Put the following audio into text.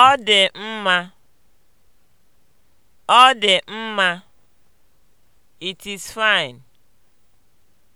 Ọ dị mma. Ọ dị mma. It is fine.